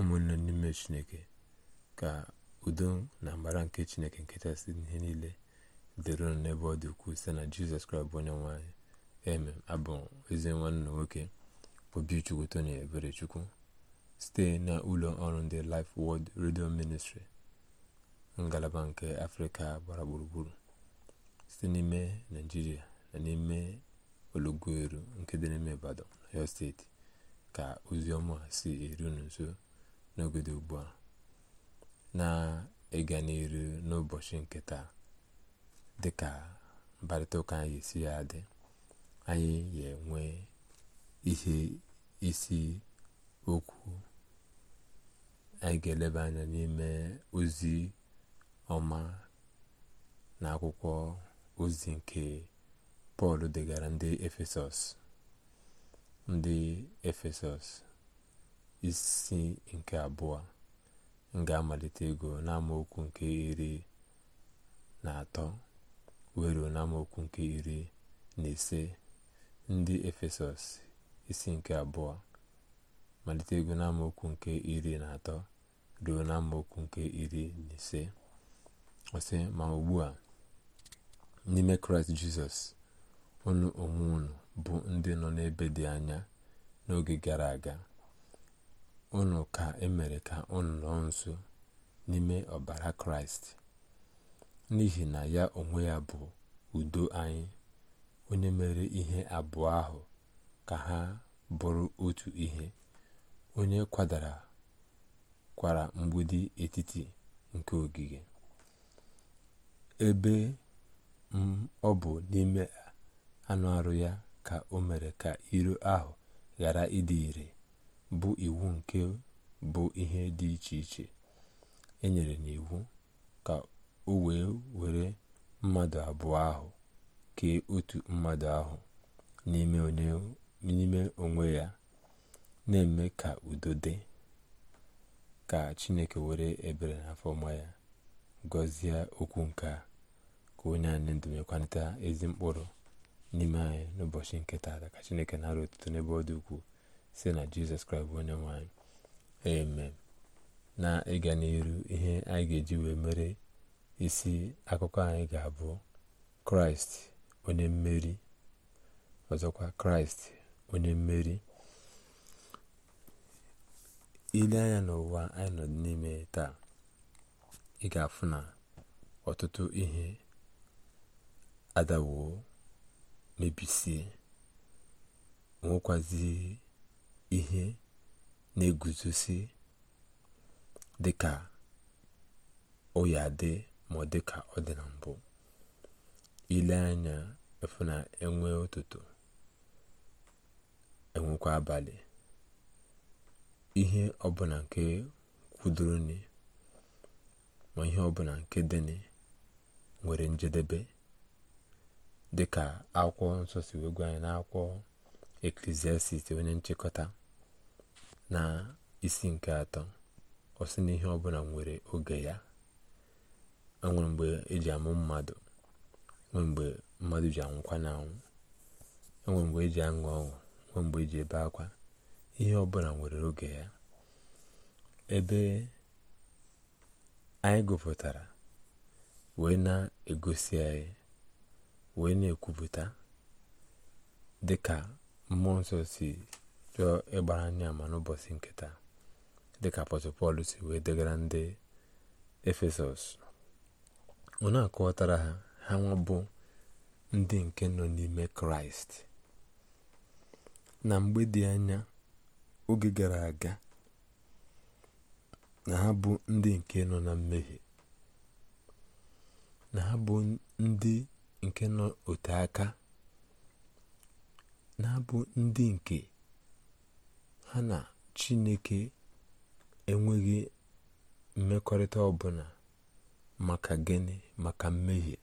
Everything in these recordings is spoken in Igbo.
ụmụnne n'ime chineke ka udo na mbara nke chineke nketa si ihe niile dịrị n'ebe ọ dị ukwuu site na jizọs kraịst bụ onye nwanyị eme abụ ezi nwanne nwoke obichukwu ebere eberechukwu site na ụlọ ọrụ ndị life world redio ministry ngalaba nke afrịka gbara gburugburu site n'ime naijiria na n'ime ologoeru nke dị n'ime ibadan ọyọ steeti ka ozi ọma si eru unu nso n'ogodo ugbu a na ịga n'iru n'ụbọchị nke taa dịka mkparịta ụka anyị esi ya dị anyị ga-enwe ihe isi okwu anyị ga-eleba anya n'ime ozi ọma na akwụkwọ ozi nke pọl degara ndị efesọs ndị efesọs isi nke abụọ nga ga-amalite ego n'amaokwu nke iri na atọ weruo ruo n'amaokwu nke iri na ise ndị efesọs isi nke abụọ malite ego n'amaokwu nke iri na atọ ruo n'amaokwu nke iri na ise ọsị ma ugbu a n'ime kraịst jizọs unu onwe bụ ndị nọ n'ebe dị anya n'oge gara aga unu ka emere ka unu nọ nso n'ime ọbara kraịst n'ihi na ya onwe ya bụ udo anyị onye mere ihe abụọ ahụ ka ha bụrụ otu ihe onye kwadara kwara mgbidi etiti nke ogige ebe ọ bụ n'ime anụ arụ ya ka o mere ka iro ahụ ghara ịdị ire bụ iwu nke bụ ihe dị iche iche e enyere n'iwu ka o wee were mmadụ abụọ ahụ kee otu mmadụ ahụ n'ime onwe ya na-eme ka udo dị ka chineke were ebere na afọma ya gọzie okwu nke a ka onye anyị ndụ mekwanịta ezi mkpụrụ n'ime anyị n'ụbọchị nke taa ka chineke na-arụ otuto n'ebe ọ dị si na jizọs kraịst bụ onye nwe amen na ịga n'iru ihe anyị ga-eji wee mere isi akụkọ anyị ga-abụ kraịst onye mmeri ọzọkwa kraịst onye mmeri ile anya n'ụwa anyị nọ n'ime taa ị ga-afụ na ọtụtụ ihe adawo mebisie nwekwazi ihe na-eguzosi dịka ọya dị ma ọ dịka ọ dị na mbụ ile anya efu na enwe ụtụtụ enwekwa abalị ihe ọbụla nke kwudoroni ma ihe ọbụla nke dịnị nwere njedebe dịka akwụkwọ nsọ si wee gwa anyị akwụkwọ eklesiastis onye nchịkọta na isi nke atọ ọ sị na ihe ọbụla nwere oge ya enwere mgbe eji amụ mmadụ mgbe mmadụ ji anwụkwa na anwụ enwere mgbe eji aṅụ ọṅụ nwee mgbe eji ebe akwa ihe ọbụla nwere oge ya ebe anyị gụpụtara wee na-egosi anyị wee na-ekwupụta dịka mmụọ nsọ si chọọ ịgbara anyị ama n'ụbọchị nke dịka apọstọl pọl si wee degara ndị efesọs ọ na-akọwatara ha ha ndị nke nọ n'ime kraịst na mgbe dị anya oge gara aga na ha bụ ndị nke nọ na mmehie na ha bụ ndị nke nọ ote aka na ha bụ ndị nke ha na chineke enweghị mmekọrịta ọbụla maka gịnị maka mmehie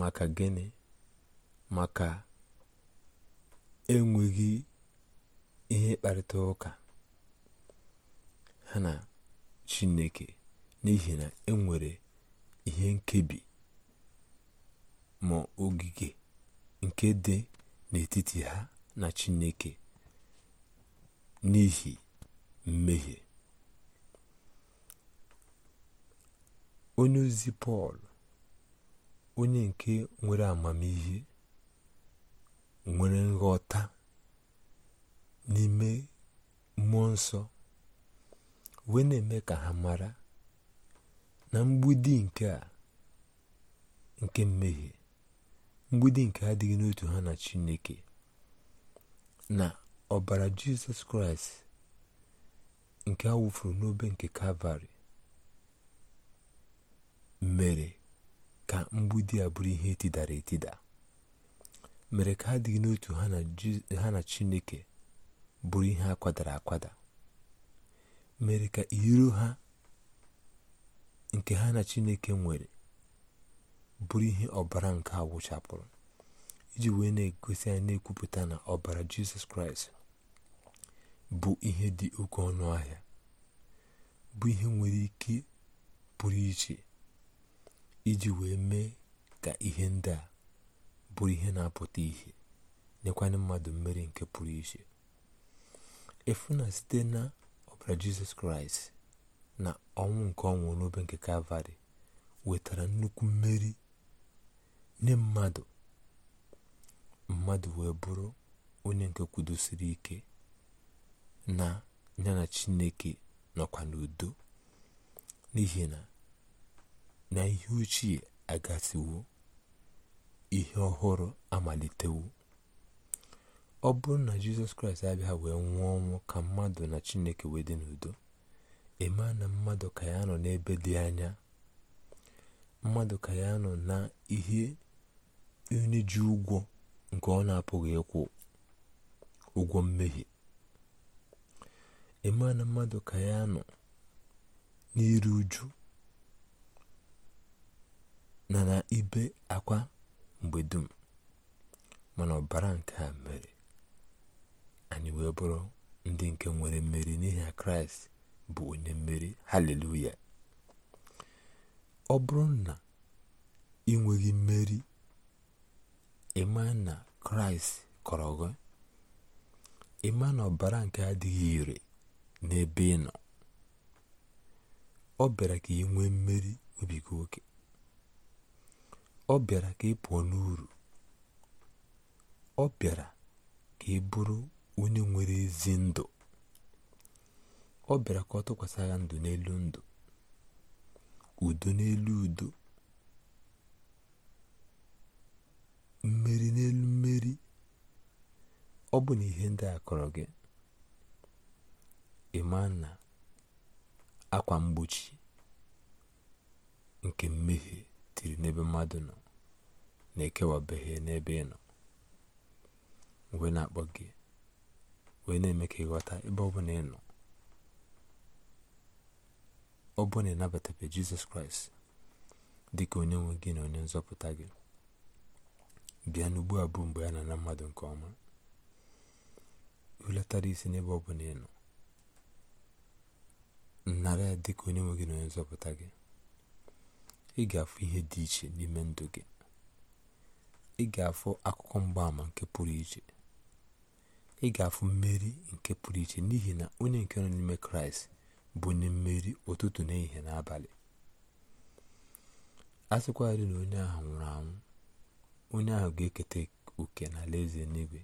maka gịnị maka enweghị ihe mkparịta ụka ha na chineke n'ihi na enwere ihe nkebi ma ogige nke dị n'etiti ha na chineke n'ihi mmehie onye ozi pọl onye nke nwere amamihe nwere nghọta n'ime mmụọ nsọ wee na-eme ka ha mara na mgbidi nke a nke mmehie mgbidi nke adịghị n'otu ha na chineke na ọbara jizọs kraịst nke a wụfuru n'obe nke kalvarị mere ka mgbidi a bụrụ ihe etidara etida mere ka ha dịghị n'otu ha na chineke bụrụ ihe a akwada mere ka iro ha nke ha na chineke nwere bụrụ ihe ọbara nke a wụchapụrụ iji wee na-egosi anyị na-ekwupụta na ọbara jizọs kraịst bụ ihe dị oke ọnụ ahịa bụ ihe nwere ike pụrụ iche iji wee mee ka ihe ndị a bụrụ ihe na-apụta ihe nyekwanye mmadụ mmeri nke pụrụ iche efu na site na ọbara jizọs kraịst na ọnwụ nke ọnwụ n'obe nke kalvarị wetara nnukwu mmeri nye mmadụ mmadụ wee bụrụ onye nke kwudosiri ike na ya na chineke nọkwa n'udo n'ihi na na ihe ochie agasiwo ihe ọhụrụ amalitewo ọ bụrụ na jizọs kraịst abịa wee nwụọ ọnwụ ka mmadụ na chineke wee dị n'udo eme na mmadụ ka ya nọ n'ebe dị anya mmadụ ka ya nọ na ihe onye ji ụgwọ nke ọ na-apụghị ịkwụ ụgwọ mmehie na mmadụ ka ya nọ n'iru uju na na ibe akwa mgbe dum mana ọbara nke a mere anyị wee bụrụ ndị nke nwere mmeri n'ihi na kraịst bụ onye mmeri haleluya ọ bụrụ na ị nweghị mmeri ịma na kraịst kọrọ gị ịma na ọbara nke adịghị ire n'ebe ị nọ ọ bịara ka ị nwee mmeri obigo oke ọ bịara ka ị pụọ n'uru ọ bịara ka ị bụrụ onye nwere ezi ndụ ọ bịara ka ọ tụkwasị ya ndụ n'elu ndụ udo n'elu udo mmeri n'elu mmeri ọ bụ na ihe ndị a kọrọ gị emana akwa mgbochi nke mmehie tiri n'ebe mmadụ nọ na-ekewabeghị n'ebe ị wee na-akpọ gị wee na-eme ka ịghọta ebe ọ bụ ị nọ ọ bụ na ịnabatabe jizọs kraịst dịka onye nwe gị na onye nzọpụta gị bịa n'ugbu abụọ mgbe a na mmadụ nke ọma hulatara isi n'ebe ọ bụla ị nọ nara ya dịka onye nwe gị na onye nzọpụta gị ị ga-afụ ihe dị iche n'ime ndụ gị ị ga-afụ akụkọ mgbaàmà nke pụrụ iche ị ga-afụ mmeri nke pụrụ iche n'ihi na onye nke nọ n'ime kraịst bụ onye mmeri ụtụtụ na ehihie n'abalị a sịkwarị na onye ahụ nwụrụ anwụ onye ahụ ga-eketa oke na alaeze n'igwe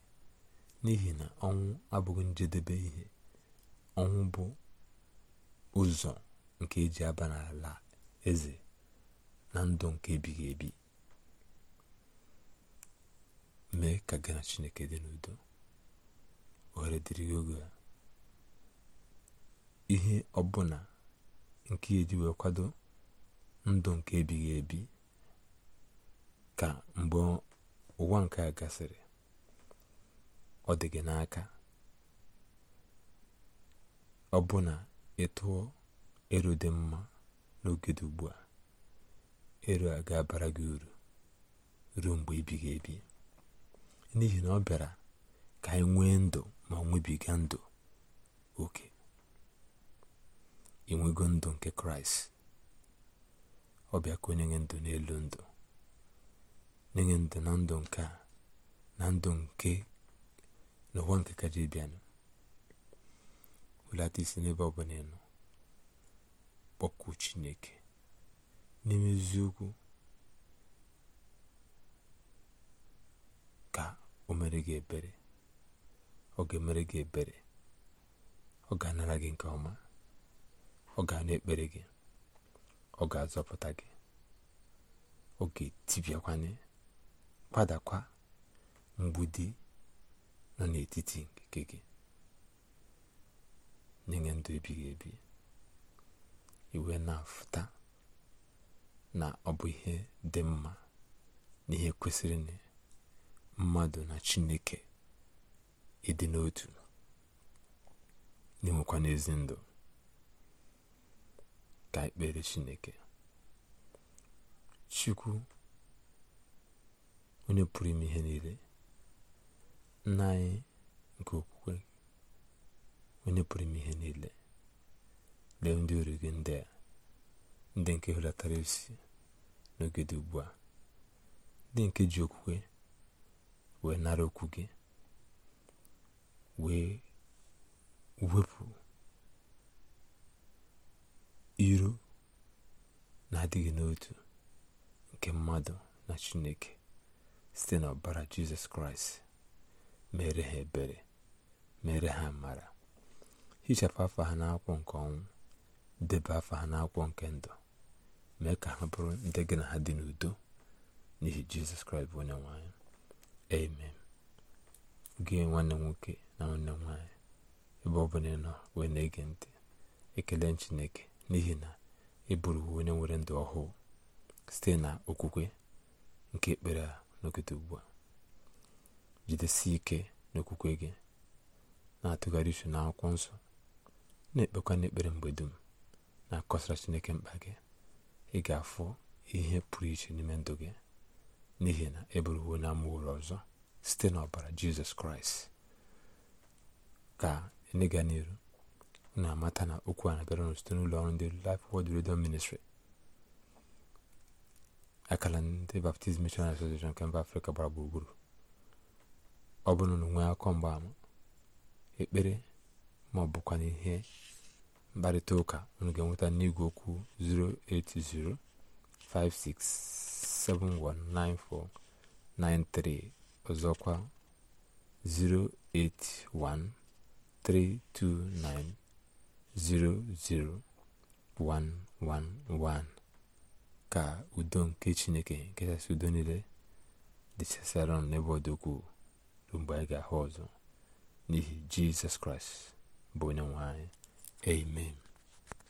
n'ihi na ọnwụ abụghị njedebe ihe ọnwụ bụ ụzọ nke eji aba n'ala eze na ndụ nke ebighị ebi mee ka gị na chineke dị n'udo ohere dịrị gị oge ihe ọbụla nke eji wee kwado ndụ nke ebighị ebi ka mgbe ụwa nke a gasịrị ọ dị gị n'aka ọ ị tụọ ero dị mma n'oge dị ugbu a ero a ga-abara gị uru ruo mgbe ebighị ebi n'ihi na ọ bịara ka anyị nwee ndụ ma nwebiga ndụ oke inwego ndụ nke kraịst ọ bịa ka onye nye ndụ n'elu ndụ nye ndụ na ndụ nke a na ndụ nke n'ụwa nke bịanụ welata isi n'ebe ọ bụla ị nọ kpọkuo chineke n'ime eziokwu ka o mere gị ebere ọ ga-emere gị ebere ọ ga-anara gị nke ọma ọ ga-anụ ekpere gị ọ ga-azọpụta gị ọ ga-etibiakwanye kpadakwa mgbidi nọ n'etiti nke gị n'inye ndụ ebighị ebi iwe na-afụta na ọ bụ ihe dị mma na ihe kwesịrị na mmadụ na chineke ịdị n'otu na-enwekwa n'ezi ndụ ka ekpere chineke chukwu onye pụrụ ime ihe niile nna anyị nke ukwu onye pụrụ ihe niile lee ndị ori gị ndị ndị nke hụlatara isi n'oge ugbu a ndị nke ji okwukwe wee nara okwu gị wee wepụ iru na-adịghị n'otu nke mmadụ na chineke site n'ọbara jizọs kraịst mere ha ebere mere ha mara hichapụ afọ ha n'akwụkwọ nke ọnwụ debe afọ ha n'akwụkwọ nke ndụ mee ka ha bụrụ ndị gị na ha dị n'udo n'ihi jizọs kraịst bụ onye nwanyị amen gị nwanne nwoke na nwanne nwanyị ebe ọ bụla ịnọ nọ wee na-ege ntị ekele chineke n'ihi na ị bụrụ onye nwere ndụ ọhụụ site na okwukwe nke ekpere a n'okete ugbu a jidesie ike n'okwukwe gị na-atụgharị uche akwụkwọ nsọ na-ekpekwa n'ekpere mgbe dum na-akọsara chineke mkpa gị ị ga-afụ ihe pụrụ iche n'ime ndụ gị n'ihi na eburuwo na amụrụ ọzọ site n'ọbara jizọs kraịst ka e n'ịga n'iru na-amata na okwu a na-abịara ụnụ site n'ụlọ ọrụ ndị Life Word Radio Ministry akala ndị Baptist Missionary Association nke mba Afrịka gbara gburugburu ọ bụrụ na nwee akọ mgbaama ekpere ma ọ bụkwa n'ihe mkparịta ụka unu ga-enweta n'igwe okwu 08056719493 ọzọkwa 08132900111 ka udo nke chineke nke kachasị udo niile dịchasịara ọnụ n'ebe ọ mgbe anyị ga-ahụ ọzọ n'ihi jizọs kraịst bụ onye nwe Amen.